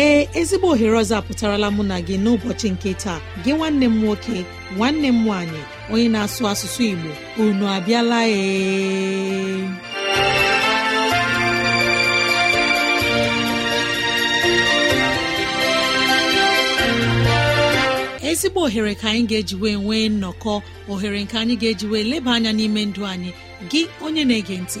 ee ezigbo ohere ọzọ apụtarala mụ na gị n'ụbọchị nke taa gị nwanne m nwoke nwanne m nwaanyị onye na-asụ asụsụ Igbo unu abịala ee ezigbo ohere ka anyị ga-ejiwe nwee nnọkọ ohere nke anyị ga-ejiwe eji leba anya n'ime ndụ anyị gị onye na-ege ntị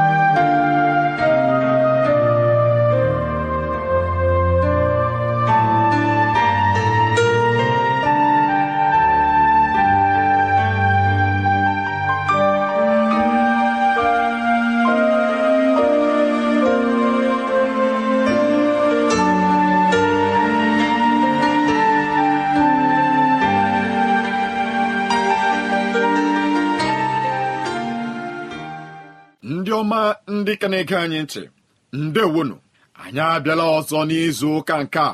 na-ege anyị ntị ndewonu anyị abịala ọzọ n'izu ụka nke a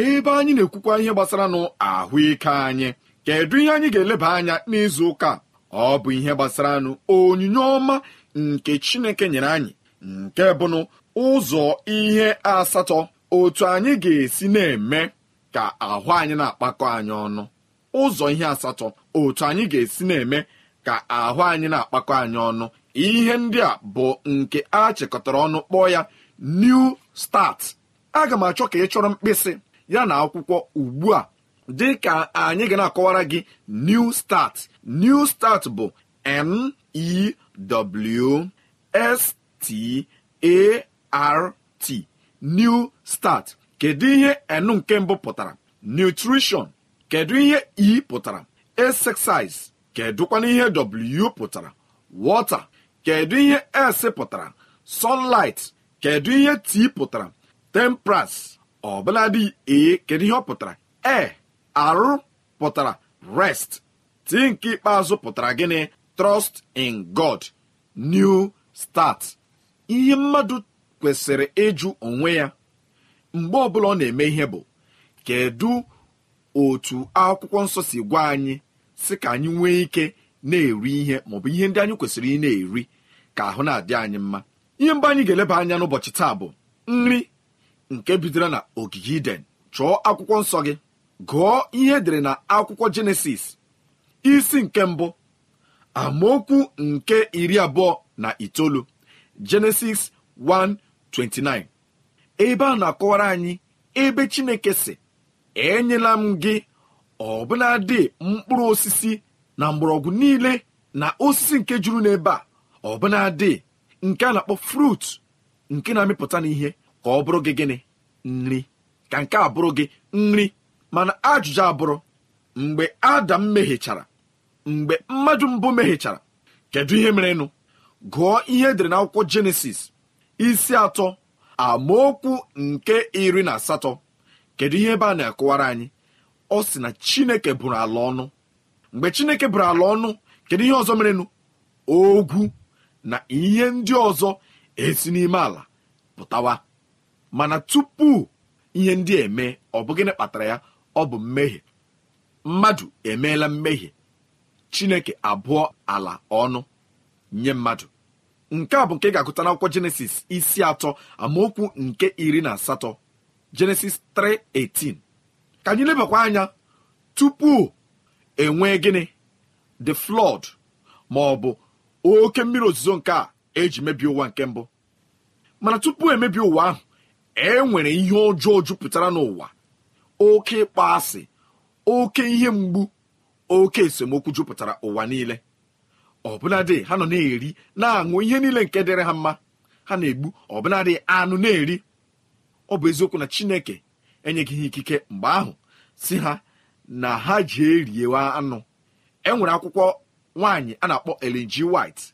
ebe anyị na-ekwukwa ihe gbasara nụ ahụike anyị kedu ihe anyị ga-eleba anya n'izu ụka ọ bụ ihe gbasara nụ onyinye ọma nke Chineke nyere anyị nke bụnụ ụzọ ihe asatọ otu anyị ga-esi na-eme ka ahụ anyị na-akpakọ anyị ụzọ ihe asatọ otu anyị ga-esi na-eme ka ahụ anyị na-akpakọ anyị ọnụ ihe ndị a bụ nke a chịkọtara ọnụ kpọọ ya new start aga m achọ ka ị chọrọ mkpịsị ya na akwụkwọ ugbu a dị ka anyị ga na-akọwara gị new start new start bụ n e s t a r t new start kedu ihe n nke mbụ pụtara nutrition kedu ihe e pụtara exercise kedụkwana ihe w pụtara water kedu ihe si pụtara sunlight kedu ihe t pụtara temperance ọbụladị e kedu ihe ọ pụtara e arụ pụtara rest t nke ikpeazụ pụtara gịnị trust in god new start ihe mmadụ kwesịrị ịjụ onwe ya mgbe ọbụla ọ na-eme ihe bụ kedu otu akwụkwọ nsọ si gwa anyị si ka anyị nwee ike na-eri ihe maọbụ ihe ndị anyị kwesịrị ị na-eri ka ahụ na-adị anyị mma ihe mgbe anyị ga-eleba anya n'ụbọchị taa bụ nri nke bidoro na ogige iden chọọ akwụkwọ nsọ gị gụọ ihe edere na akwụkwọ jenesis isi nke mbụ amaokwu nke iri abụọ na itoolu jenesis 1:29 ebe a na-akọwara anyị ebe chineke si enyela m gị dị mkpụrụ osisi na mgbọrọgwụ niile na osisi nke juru n'ebe a ọbụnadị nke a na-akpọ frut nke na-amịpụta n'ihe ka ọ bụrụ gị gịnị nri ka nke a bụrụ gị nri mana ajụjụ abụrụ mgbe adam mehichara mgbe mmadụ mbụ mehichara kedu ihe merenụ gụọ ihe edere n'akwụkwọ jenesis isi atọ amaokwu nke iri na asatọ kedu ihe ebe a na-akụwara anyị ọ sị na chineke bụrụ ala ọnụ mgbe chineke bụrụ ala ọnụ kedu ihe ọzọ merenụ ogwu na ihe ndị ọzọ esi n'ime ala pụtawa mana tupu ihe ndị eme ọ bụ gịnị kpatara ya ọ bụ mmehie mmadụ emeela mmehie chineke abụọ ala ọnụ nye mmadụ nke a bụ nke ga-agụta n'akwụkwọ jenesis isi atọ amaokwu nke iri na asatọ jenesis 3:18 ka anyị lebakwa anya tupu enwee gịnị the flood ma ọ bụ oke mmiri ozuzo nke a eji mebie ụwa nke mbụ mana tupu emebie ụwa ahụ e nwere ihe ọjọọ jupụtara n'ụwa oke ịkpọ asị oke ihe mgbu oke esemokwu jupụtara ụwa niile ọbụnadị ha nọ na-eri na-aṅụ ihe niile nke dịrị ha mma ha na-egbu ọbụnadị anụ na-eri ọ bụ eziokwu na chineke enyeghị ikike mgbe ahụ si ha na ha ji eriwa anụ e nwere akwụkwọ nwaanyị a na-akpọ lg White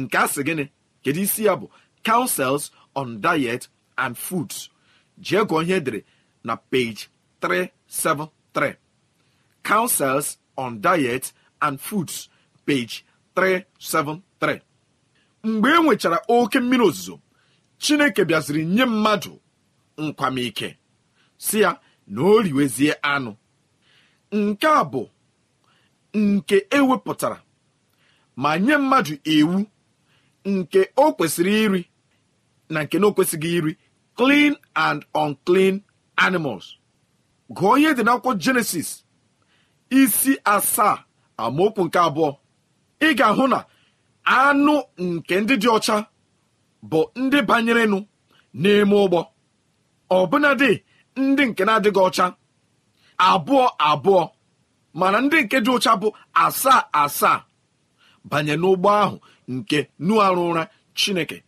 nke a sị gịnị kedu isi ya bụ councils on diet and foods jee gụọ ihe edere na page 373 councils on diet and foods page 373 mgbe e nwechara oke mmiri ozuzo chineke bịaziri nye mmadụ nkwamike si ya na o riwezie anụ nke a bụ nke ewepụtara ma nye mmadụ iwu nke o kwesịrị iri na nke na o kwesịghị iri clean and unclean animals gụọ ihe dị n'akwụkwọ jenesis isi asaa amaokwu nke abụọ ị ga-ahụ na anụ nke ndị dị ọcha bụ ndị banyerenụ n'ime ụgbọ ọbụnadị ndị nke na-adịghị ọcha abụọ abụọ mana ndị nke dị ọcha bụ asaa asaa banye n'ụgbọ ahụ nke nu arụ ụra chineke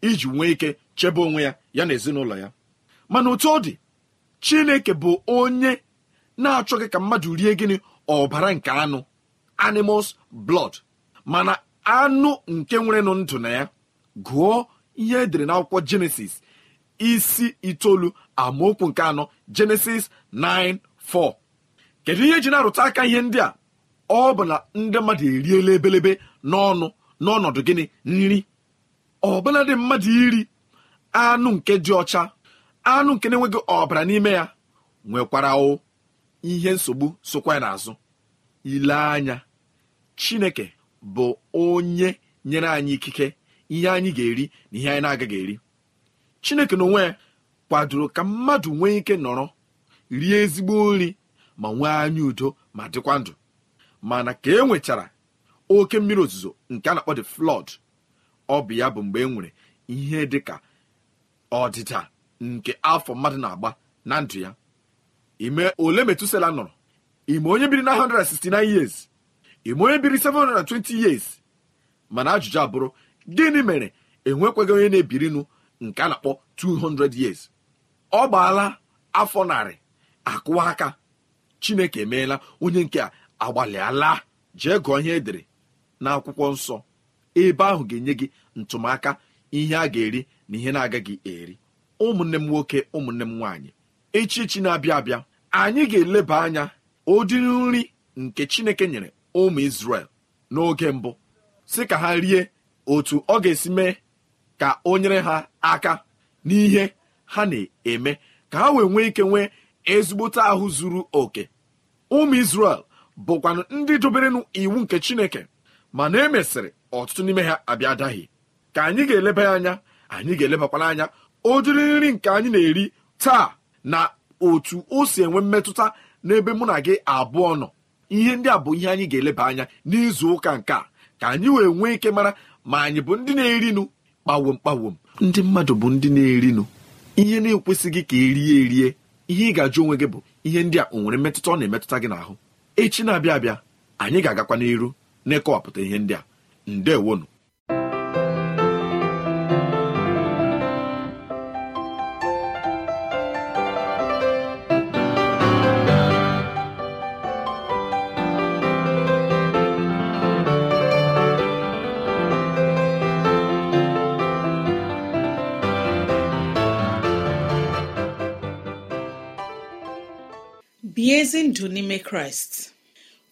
iji nwee ike chebe onwe ya ya na ezinụlọ ya mana otu ọ dị chineke bụ onye na-achọghị ka mmadụ rie gịnị ọbara nke anụ animals blood mana anụ nke nwere nụ ndụ na ya gụọ ihe edere n'akwụkwọ jenesis isi itoolu amaokwu nke anọ jenesis 4 kedu ihe ji na-arụta aka ihe ndị a ọ bụ na ndị mmadụ eriela ebelebe n'ọnụ n'ọnọdụ gịnị nri dị mmadụ iri anụ nke dị ọcha anụ nke na-enweghị ọbara n'ime ya nwekwara o ihe nsogbu sokwa ya n'azụ ile anya chineke bụ onye nyere anyị ikike ihe anyị ga-eri na ihe anyị na-agaghị eri chineke na ya kwadoro ka mmadụ nwee ike nọrọ rie ezigbo nri ma nwee anya udo ma dịkwa ndụ mana ka e nwechara oke mmiri ozuzo nke a na-akpọ the flood ọ bụ ya bụ mgbe e nwere ihe dị ka ọdịda nke afọ mmadụ na-agba na ndụ ya ime ole metusela nọrọ ime onye biri na 169 years ime onye biri 720 years mana ajụjụ abụrụ gịnị mere enwekwaghị onye na-ebirinụ nke a na-akpọ 200 years ọ gbaala afọ narị akụwa aka chineke emeela onye nke a agbalịala jee gụọ ihe edere n'akwụkwọ nsọ ebe ahụ ga-enye gị ntụmaka ihe a ga-eri na ihe na-agaghị eri ụmụnne m nwoke ụmụnne m nwaanyị echichi na-abịa abịa anyị ga-eleba anya ụdịrị nri nke Chineke nyere ụmụ Izrel n'oge mbụ si ka ha rie otu ọ ga-esi mee ka o nyere ha aka n'ihe ha na-eme ka ha wee nwee ike nwee ezigbote ahụ zuru oke ụmụ Izrel bụkwanụ ndị doberenụ iwu nke chineke mana e mesịrị ọtụtụ n'ime ha abịa adaghị ka anyị ga-eleba ya anya anyị ga-elebakwana anya ụdịrị nri nke anyị na-eri taa na otu o si enwe mmetụta n'ebe mụ na gị abụọ nọ ihe ndị a bụ ihe anyị ga-eleba anya n'izu ụka nke a ka anyị wee nwee ike mara ma anyị bụ ndị na erinụ kpawom kpawom ndị mmadụ bụ ndị na erinụ ihe na-ekwesịghị ka erie erie ihe ị ga-ajụ onwe gị bụ ihe ndị a o nwere mmetụta ọ na-emetụta gị n'ahụ echi na-abịa abịa anyị ga-agakwa n'iru n'ịkọwapụta ihe ndị a ndewonu bie ezi ndụ n'ime kraịst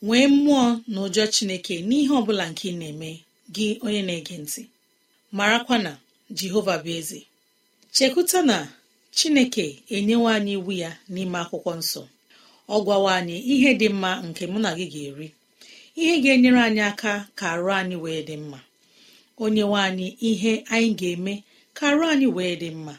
nwee mmụọ na ụjọ chineke n'ihe ọ bụla nke ị na-eme gị onye na-ege ntị marakwa na jehova bụ eze chekwuta na chineke enyewe anyị iwu ya n'ime akwụkwọ nsọ ọ gwawa anyị ihe dị mma nke mụ na gị ga-eri ihe ga-enyere anyị aka ka arụ anyị wee dị mma onye anyị ihe anyị ga-eme ka arụ anyị wee dị mma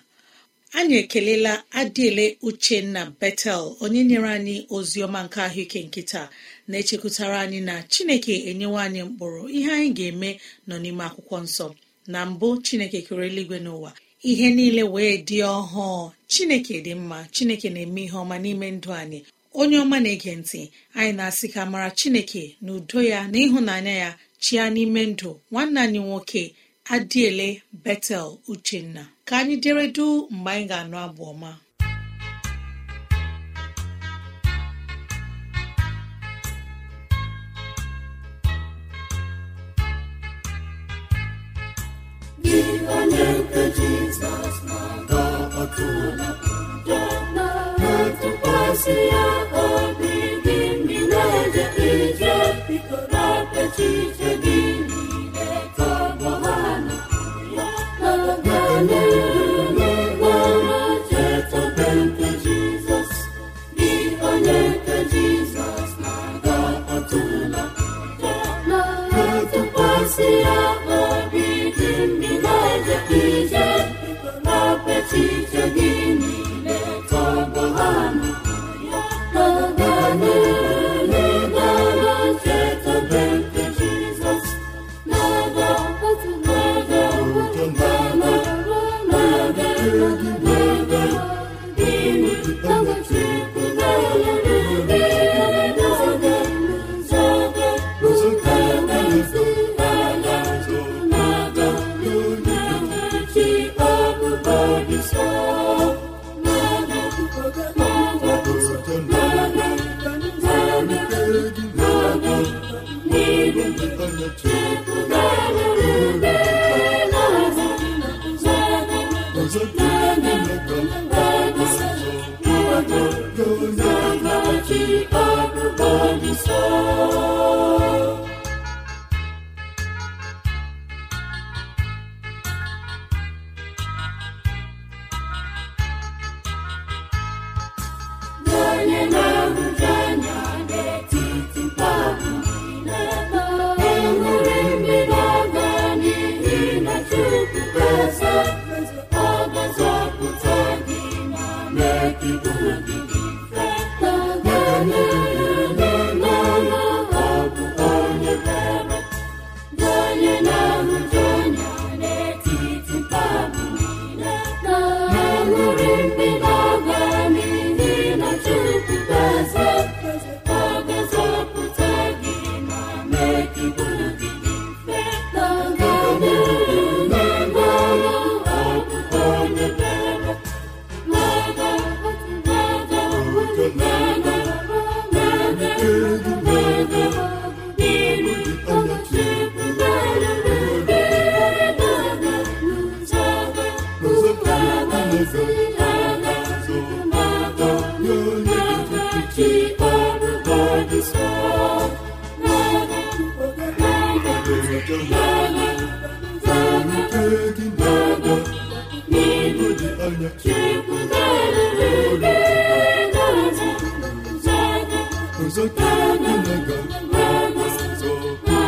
anyị ekelela adịele uchenna betel onye nyere anyị ozi ọma nke ahụike nkịta na-echekwutara anyị na chineke enyewe anyị mkpụrụ ihe anyị ga-eme nọ n'ime akwụkwọ nsọ na mbụ chineke kere eluigwe n'ụwa ihe niile wee dị ọhụụ chineke dị mma chineke na-eme ihe ọma n'ime ndụ anyị onye ọma na-ege ntị anyị na-asị ka mara chineke na udo ya na ịhụnanya ya chia n'ime ndụ nwanne anyị nwoke adịele betel uchenna ka anyị dere du mgbe anyị ga-anụ abụ ọma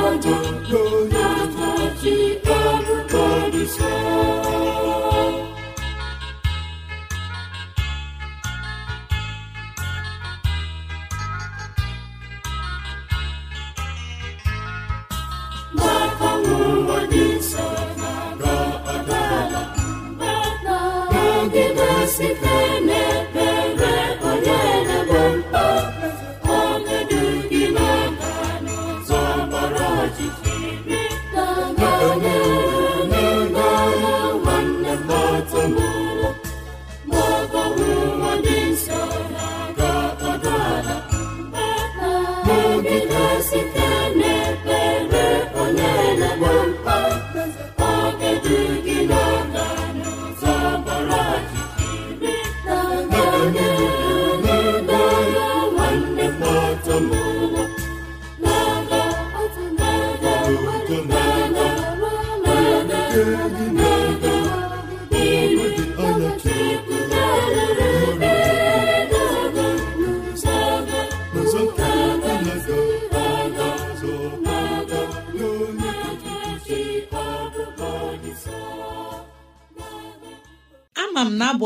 Lord, Lord, Lord.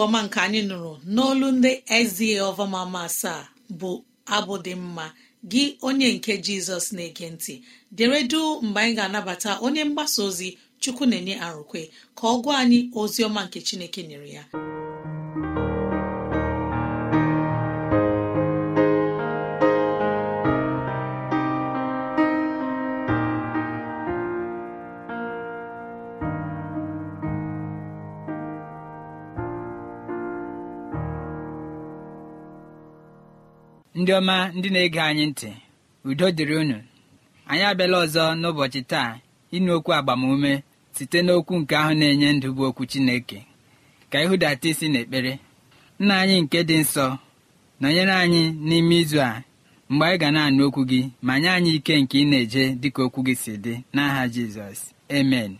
ọma nke anyị nụrụ n'olu ndị ezie ọvamama asaa bụ abụ dị mma gị onye nke jizọs na-ege ntị deredu mgbe anyị ga-anabata onye mgbasa ozi chukwu na-enye arụkwe ka ọ gwa anyị ozi ọma nke chineke nyere ya ndị ọma ndị na-ege anyị ntị udo dịrị unu anyị abịala ọzọ n'ụbọchị taa ịnụ okwu agbamume site n'okwu nke ahụ na-enye ndụ bụ okwu Chineke ka ihudata isi n'ekpere nna anyị nke dị nsọ nọnyere anyị n'ime izu a mgbe anyị ga na-anụ okwu gị ma nye anyị ike nke ị na-eje dịka okwu gị si dị n'aha Jizọs amen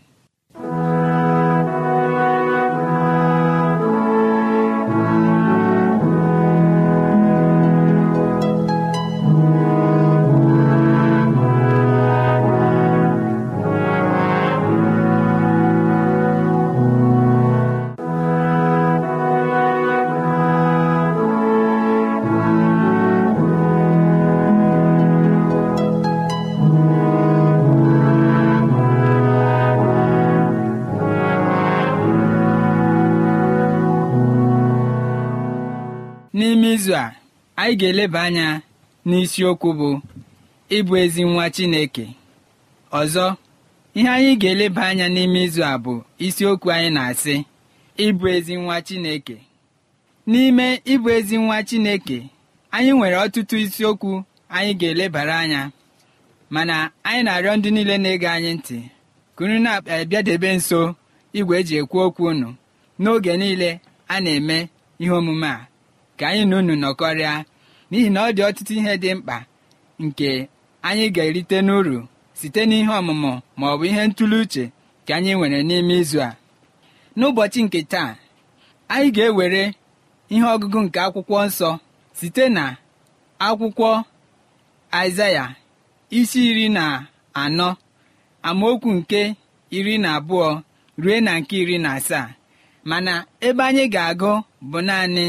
anyị ga-eleba anya n'isiokwu bụ ịbụ ezi nwa Chineke ọzọ ihe anyị ga-eleba anya n'ime izu a bụ isiokwu anyị na-asị ịbụ ezi nwa Chineke n'ime ịbụ ezi nwa Chineke anyị nwere ọtụtụ isiokwu anyị ga-elebara anya mana anyị na-arịọ ndị niile na-ege anyị ntị kunu na-abịadebe eh, nso igwe eji ekwu okwu unu n'oge niile a na-eme ihe omume a ka anyị na unu nọkọrịa n'ihi na ọ dị ọtụtụ ihe dị mkpa nke anyị ga-erite n'uru site n'ihe ọmụmụ ma ọ bụ ihe ntuli uche ka anyị nwere n'ime izu a n'ụbọchị nke taa anyị ga-ewere ihe ọgụgụ nke akwụkwọ nsọ site na akwụkwọ aịzaya isi iri na anọ amaokwu nke iri na abụọ rue na nke iri na asaa mana ebe anyị ga-agụ bụ naanị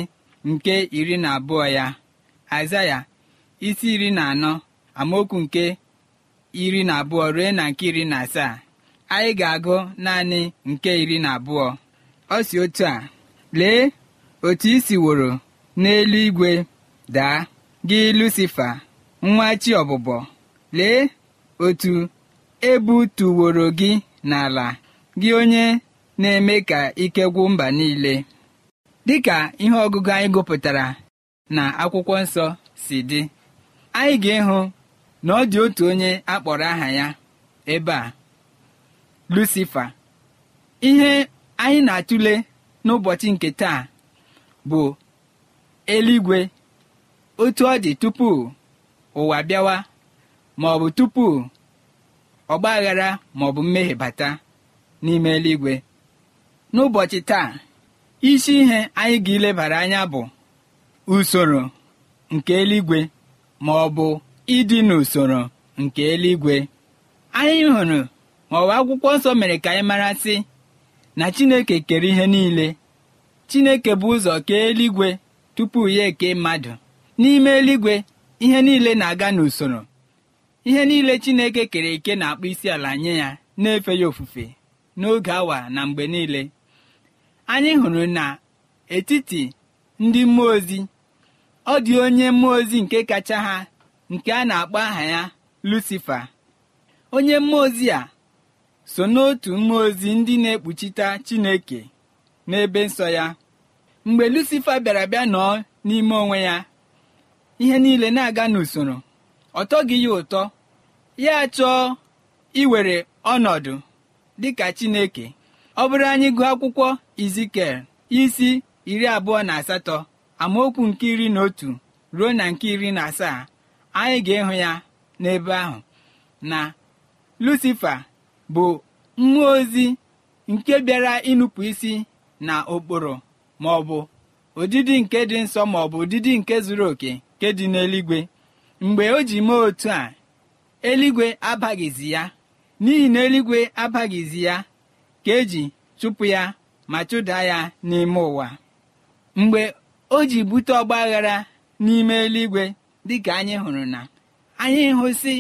nke iri na abụọ ya aịzaya isi iri na anọ amaokwu nke iri na abụọ ruo na nke iri na asaa anyị ga-agụ naanị nke iri na abụọ ọ si otu a lee otu i n'elu igwe daa gị lucifa nwa chi ọbụbọ lee otu ebu ebutuworo gị n'ala gị onye na-eme ka ike gwụ mba niile dịka ihe ọgụgụ anyị gụpụtara na akwụkwọ nsọ si dị anyị ga-ịhụ na ọ dị otu onye akpọrọ aha ya ebe a Lucifa ihe anyị na-atụle n'ụbọchị nke taa bụ eluigwe otu ọ dị tupu ụwa bịawa ma ọ bụ tupu ọgbaghara ma ọ bụ mmehie bata n'ime eluigwe n'ụbọchị taa isi ihe anyị ga-elebara anya bụ usoro nke eluigwe ma ọ bụ ịdị n'usoro nke eluigwe anyị hụrụ ma ọ bụ akwụkwọ nsọ mere ka anyị mara sị na chineke kere ihe niile chineke bụ ụzọ kee eluigwe tupu ya eke mmadụ n'ime eluigwe ihe niile na-aga n'usoro ihe niile chineke kere eke na-akpọ isi ala nye ya na-efe ya ofufe n'oge awa na mgbe niile anyị hụrụ na etiti ndị mmụọ ozi ọ dị onye mmụọ ozi nke kacha ha nke a na-akpọ aha ya lucifa onye mmụọ ozi a so n'otu mmụọ ozi ndị na-ekpuchite chineke n'ebe nsọ ya mgbe lucifa bịara bịa nọọ n'ime onwe ya ihe niile na-aga n'usoro ọ tọghị ya ụtọ ya chọọ iwere ọnọdụ dịka chineke ọ bụrụ anyị gụọ akwụkwọ izikel isi iri abụọ na asatọ amaokwu nke iri na otu ruo na nke iri na asaa anyị ga-ịhụ ya n'ebe ahụ na lucifa bụ mmụọ ozi nke bịara ịnụpụ isi na ụkpụrụ ma ọ bụ ụdịdị nke dị nsọ ma ọ bụ ụdịdị nke zuru oke nke dị n'eligwe. mgbe o ji mee otu a eluigwe abaghịzi ya n'ihi na eluigwe abaghịzi ya ka eji chụpụ ya ma chụda ya n'ime ụwa o ji bute ọgbaghara n'ime eluigwe dịka anyị hụrụ na anyị hụsị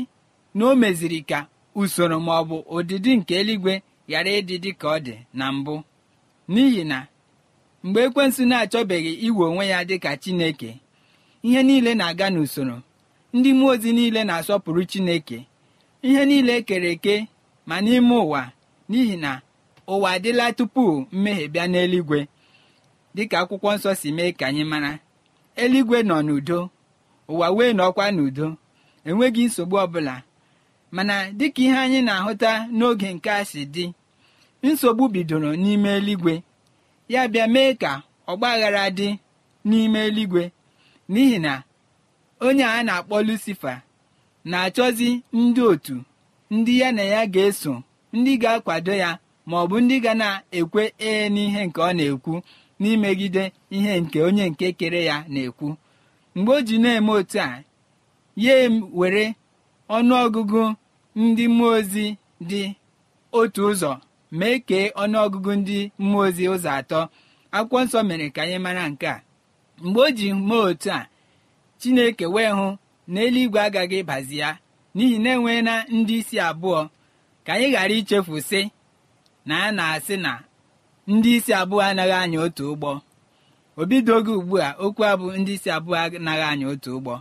na o meziri ka usoro ma ọ bụ ụdịdị nke eluigwe ghara ịdị dị ka ọ dị na mbụ n'ihi na mgbe ekwensu na-achọbeghị iwe onwe ya dịka Chineke ihe niile na-aga n'usoro ndị mmụọ ozi niile na-asọpụrụ Chineke ihe niile e kere eke ma n'ime ụwa n'ihi na ụwa adịla tupu mmehie bịa n'eluigwe dịka akwụkwọ nsọ si mee ka anyị mara eluigwe nọ n'udo ụwa wee nọkwa n'udo enweghị nsogbu ọbụla mana dịka ihe anyị na-ahụta n'oge nke a si dị nsogbu bidoro n'ime eluigwe ya bịa mee ka ọgbaghara dị n'ime eluigwe n'ihi na onye a na-akpọ lucifa na-achọzi ndị otu ndị ya na ya ga-eso ndị ga-akwado ya ma ọ bụ ndị ga na-ekwe ee n'ihe nke ọ na-ekwu n'imegide ihe nke onye nke kere ya na-ekwu mgbe o ji na-eme otu a ya were ọnụọgụgụ ndị mmụọ ozi dị otu ụzọ mee kee ọnụọgụgụ ndị mmụọ ozi ụzọ atọ akwụkwọ nsọ mere ka anyị mara nke a mgbe o ji mee otu a chineke wee hụ na eluigwe agaghị bazi ya n'ihi na enwee ndị isi abụọ ka anyị ghara ichefu sị na a na-asị na ndị isi abụọ anaghị anya otu ụgbọ obidogo ugbu a okwu abụ ndị isi abụọ anaghị anya otu ụgbọ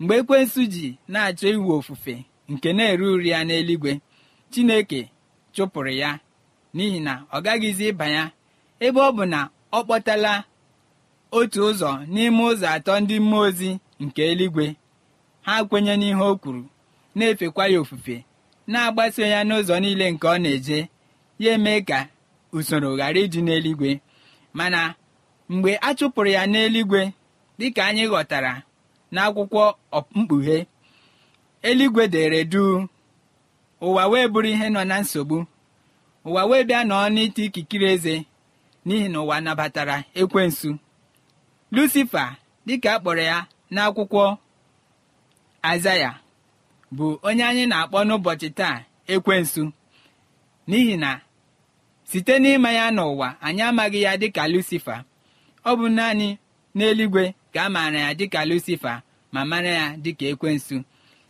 mgbe ekwensu ji na-achọ iwu ofufe nke na-ere uri ya n'eluigwe chineke chụpụrụ ya n'ihi na ọ gaghịzi ịba ya ebe ọ bụ na ọ kpọtala otu ụzọ n'ime ụzọ atọ ndị mmụọ ozi nke eluigwe ha kwenye n'ihe o kwuru na-efekwa ya ofufe na-agbaso ya n'ụzọ niile nke ọ na-eje ya eme ka usoro ghara ịdị n'eluigwe mana mgbe a chụpụrụ ya n'eluigwe dịka anyị ghọtara n'akwụkwọ mkpughe eluigwe dere duu ụwa wee bụrụ ihe nọ na nsogbu ụwa wee bịa nọọ n'ite ikikere eze n'ihi na ụwa nabatara ekwensu lucifa dịka a kpọrọ ya n'akwụkwọ azaya bụ onye anyị na-akpọ n'ụbọchị taa ekwensu n'ihi na site n'ịma ya n'ụwa anyị amaghị ya dịka lucifa ọ bụ naanị n'eluigwe ka a maara ya dịka lucifa ma mara ya dịka ekwensu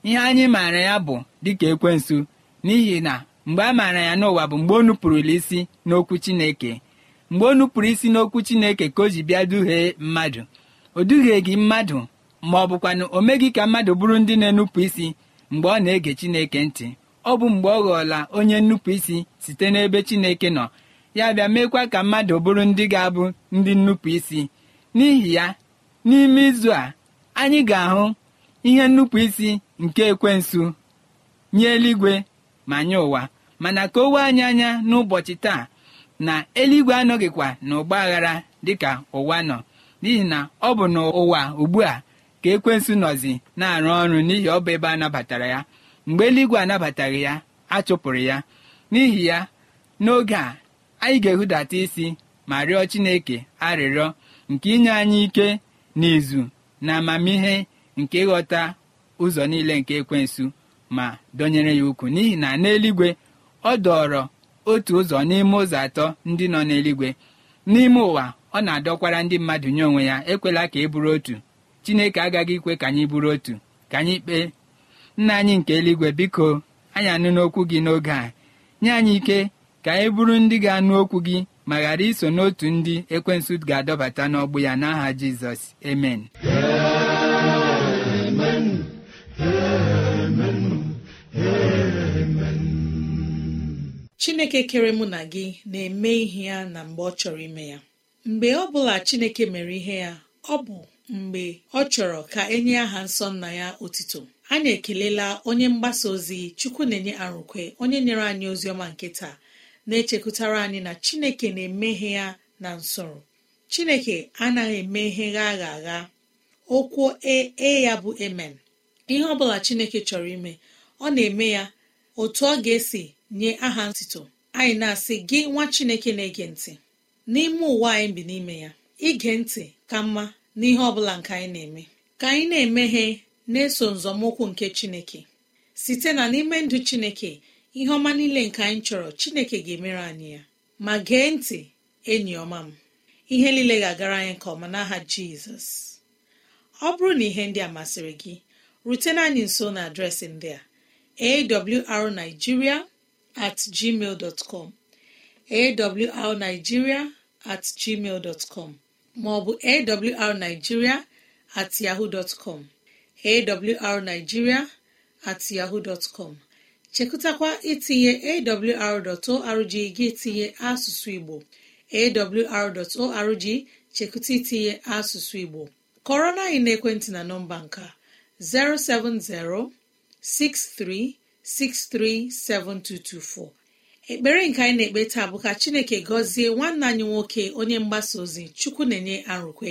ihe anyị maara ya bụ dịka ekwensu n'ihi na mgbe a maara ya n'ụwa bụ mgbe o nupụrụla isi n'okwu chineke mgbe o nupụrụ isi n'okwu chineke ka o ji bịa duhie mmadụ o gị mmadụ ma ọ bụkwanụ o meghị ka mmadụ bụrụ ndị na-enupụ isi mgbe ọ na-ege chineke ntị ọ bụ mgbe ọ ghọọla onye nnupụ isi site n'ebe chineke nọ ya bịa meekwa ka mmadụ bụrụ ndị ga-abụ ndị nnupụ isi n'ihi ya n'ime izu a anyị ga-ahụ ihe nnupụ isi nke ekwensu nye eluigwe ma nye ụwa mana ka owe anyị anya n'ụbọchị taa na eluigwe anọghịkwa na ụgba aghara dịka ụwa nọ n'ihi na ọ bụ n'ụwa ugbu a ka ekwensu nọzi na-arụ ọrụ n'ihi ọ bụ ebe a nabatara ya mgbe eluigwe anabataghị ya achụpụrụ ya n'ihi ya n'oge a anyị ga-ehudata isi ma rịọ chineke arịrịọ nke inye anyị ike n'izu na amamihe nke ịghọta ụzọ niile nke ekwensu ma dọnyere ya ukwu n'ihi na n'eluigwe ọ dọọrọ otu ụzọ n'ime ụzọ atọ ndị nọ n'eluigwe n'ime ụwa ọ na-adọkwara ndị mmadụ nye onwe ya ekwela ka e bụrụ otu chineke agaghị ikwe ka anyị bụrụ otu ka anyị kpee nna anyị nke eluigwe biko anyị anụ okwu gị n'oge a nye anyị ike ka anyị bụrụ ndị ga-anụ okwu gị ma ghara iso n'otu ndị ekwensụ ga-adọbata n'ọgbụ ya n'aha jizọs emen chineke kere mụ na gị na-eme ihe ya na mgbe ọ chọrọ ime ya mgbe ọ bụla chineke mere ihe ya ọ bụ mgbe ọ chọrọ ka enye aha nsọ nna ya otito anyị ekelela onye mgbasa ozi chukwu na-enye arụkwe onye nyere anyị ozi ọma nke taa na-echekwutara anyị na chineke na-emeghe ya na nsọrọ chineke anaghị emeghe gha agha agha okwu ee e ya bụ emen ihe ọ bụla chineke chọrọ ime ọ na-eme ya otu ọ ga-esi nye aha ntito anyị na-asị gị nwa chineke na-ege ntị n'ime ụwa anyị bi n'ime ya ige ntị ka mma n'ihe ọ bụla nke anyị na-eme ka anyị na-emeghe na-eso nzọmụkwụ nke chineke site na n'ime ndụ chineke ihe ọma niile nke anyị chọrọ chineke ga-emere anyị ya ma gee ntị enyi ọma m ihe niile ga-agara anyị nke ọma n'aha jizọs ọ bụrụ na ihe ndị a masịrị gị rutena anyị nso na adreesị ndị a awrnigeria at gmail dot com awrnigeria at com maọbụ awrnigeria at yahoo dot com awrnigeria at yahoo com chekụtakwa itinye awr.org gị tinye asụsụ igbo awr.org chekụta itinye asụsụ igbo kọrọ na anyị n'ekwentị na nọmba nka 07063637224 ekpere nke anyị na-ekpe taa bụ ka chineke gọzie nwanne anyị nwoke onye mgbasa ozi chukwu na-enye arụkwe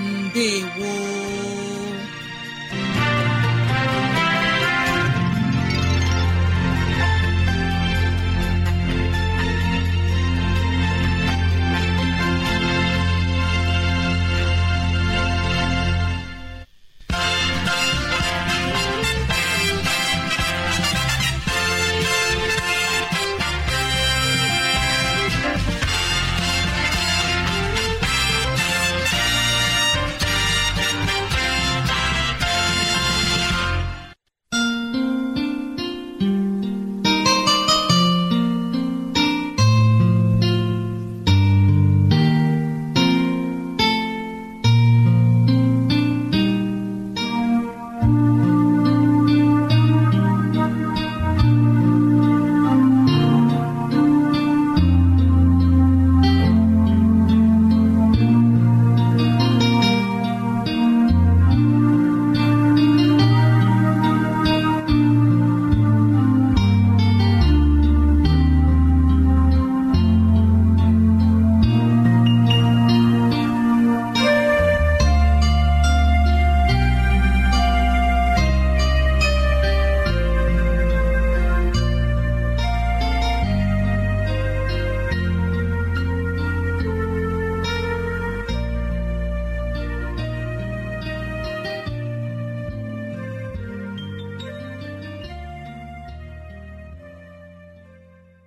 Ndewo